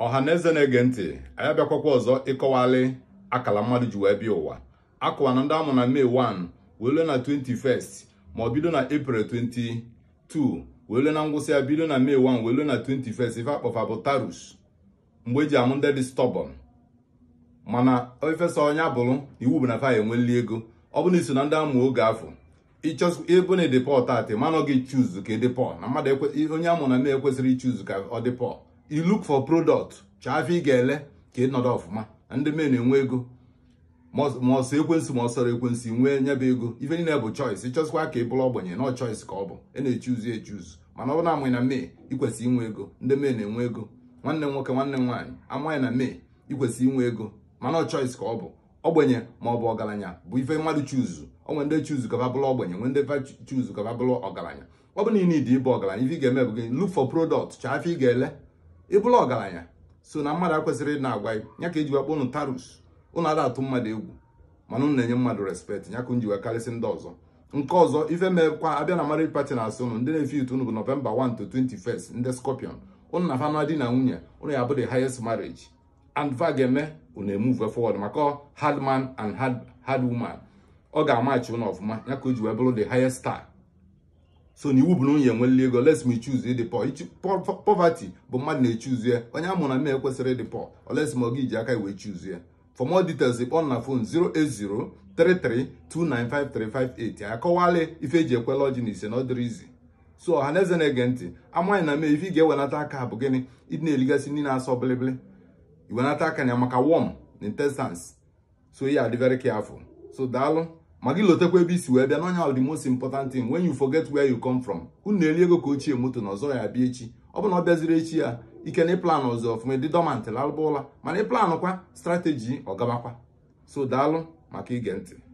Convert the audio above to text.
ọha na eze na-ege ntị anya abịakwakwa ọzọ ịkọwalị akala mmadụ ji wee bịa ụwa akụwa na ndị amụ na mee 1 wee lue na 21st ma ọ bido na April 22 wee lue na ngwụsị ya bido na May 1 wee lue na 21st ife akpọfa bụ Tarus mgbe eji amụ ndị dị stọbọn mana ofesa onye abụrụ iwu bụ na fa enweli ego ọ bụ na iso na ndị amụ oge afọ ịbụ na ịdị pọl taatị mana ọ gị chuzu ka ịdị pọl na mmadụ onye amụ na May ekwesịrị ichuzu ka ọ dị pọl you look for product chaafe ị ga-ele ka ị nọdụ ọfụma ndị na enwe ego ma ọsọ ekwensị ma ọsọrọ ekwensị nwee nyebe ego ife niile bụ choice ịchọzikwa ka ị bụrụ ogbenye nọ choice ka ọ bụ ị na-echuzu echuzu mana ọ bụ na amaghị na mee ikwesị inwe ego ndị na enwe ego nwanne m nwoke nwanne nwaanyị amaghị na mee ikwesị inwe ego mana ọ choice ka ọ bụ ogbenye ma ọ bụ ọgaranya bụ ife mmadụ chuzu onwe ndị chuzu ka babụlụ ogbenye nwe ndị chuzu ka babụlụ ọgaranya ọ bụ na ị ịbụ ọgaranya ife ị ga-eme bụ gị look for product chaafe ị ga-ele ịbụla ọgaranya so na mmadụ akwesịrị na agwa ya ka eji kpọ ụnụ tarus ụnụ ada atụ mmadụ egwu mana unu na-enye mmadụ respekt ya ka karịsị ndị ọzọ nke ọzọ ife mekwa abịa na marriage party na-asị unu ndị na-efe itu ụnụ bụ nọvemba 1 to 21st ndị scorpion ụnụ na fana di na nwunye ụnụ ya bụ the highest marriage and va ga-eme ụnụ emuve forward maka hard man and hard woman ọ ga-amachi ụnụ ọfụma ya ka o ji wee bụrụ the highest star so na iwu bụ na nwunye nwele ego let me choose ịdị poverty bụ mmadụ na-echuzu ya onye a mụrụ na ekwesịrị ịdị poor oles ma ọ ga aka iwe chuzu ya for more details kpọọ na phone 08033295358 kọwalị ife eji ekwela ọjị na ise na ọdịrị izi so ọha na eze na-ege ntị amaghị na mee ife ị ga-ewenata aka bụ gịnị ịdị na-eligasị ndị na-asọ bilibili iwenata aka na ya maka worm na intestines so adị very careful so daalụ ma gị lotekwa ebe isi wee bịa n'onye ọ dị most important thing when you forget where you come from unu na-eri ego ka ochie moto na ọzọ ya bịa echi ọ bụ na ọ bịaziri echi ya ike na ịplan ọzọ ọfụma dị dọmant lalụba ụla mana ịplanụ kwa strateji ọgabakwa so daalụ maka ige ntị